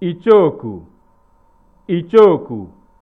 ichooku ichooku